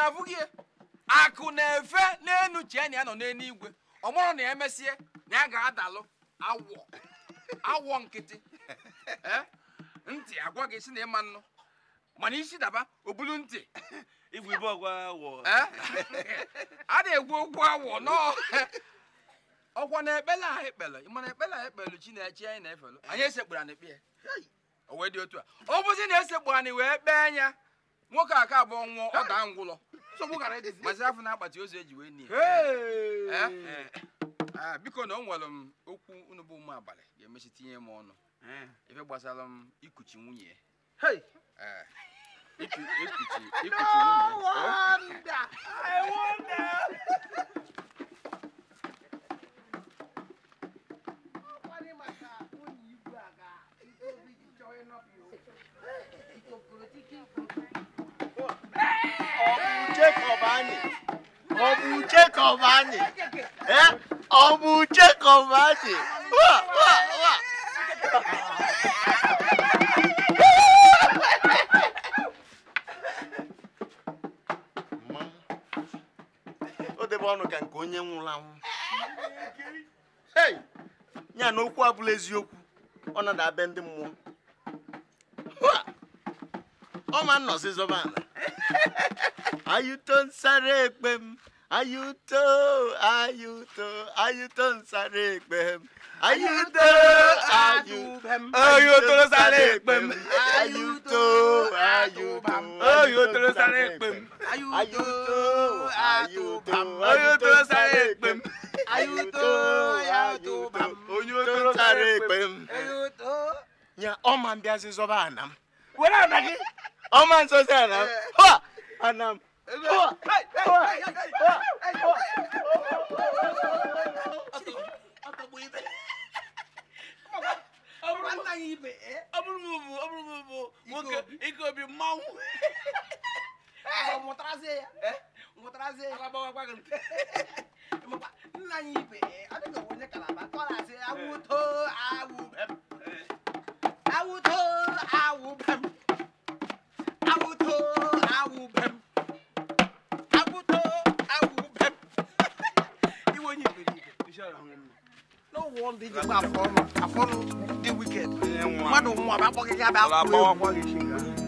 na-afụ gị akụ na-efe n'elu chee na ya nọ n'eluigwe ọ mụrụ na emesie na ya ga-adalụ awọ awọ nkịtị ntị agwa gị si na ịma nnụ mana isi daba obulu ntị igwe ibe ọgwa awọ a na-egwu okwu awọ nọọ ọkwa na ekpele ahụ ekpele mana ekpele ahụ ekpelu Chineke anyị na-efelu anyị esekpụrụ anyị kpee o wee dị otu a ọ bụzi na esekpụ anyị wee kpee anya nwoke aka abụọ nwụọ ọ daa ngwụlọ nsogbu gara edizi mazi afọ na akpati ozu eji wee ah, nie biko na o nwere m okwu unu bụ ụmụ abalị ga-emechi tinye m ọnụ ebe gbasara m ikuchi nwunye Thank you. Jekọb anyị ọ bụ Jekọb anyị eh? ọ bụ Jekọb anyị wa o debe ọnụ ka nke onye nwụrụ anwụ ya na okwu abụla eziokwu ọ nada ndị mmụọ ọ ma nnọzi zọba ala Ayuto, tó ń sáré pẹ̀m ayuto, ayuto, ayuto. tó ayú tó ń sáré pẹ̀m ayuto, ayuto. Ayuto, pẹ̀m ayú tó ń sáré pẹ̀m ayú tó ayú pẹ̀m ń sáré pẹ̀m ayú tó ayú ń sáré pẹ̀m ayú tó ń sáré pẹ̀m ayú nya ọma mbịa sị zọba anam were anagị ọma nso sị anam ha anam ike obi mmanwụ mụtarazie ya mụtarazie ya alabawa nna anyị ibe adịghị onye kalaba ọ na-asị awụto awụ bem awụto awụ bem awụto awụ bem no one did dey jẹ pé àfọrùn àfọrùn the wicked mmadụ nwa bụ akpọkịta you akpọkịta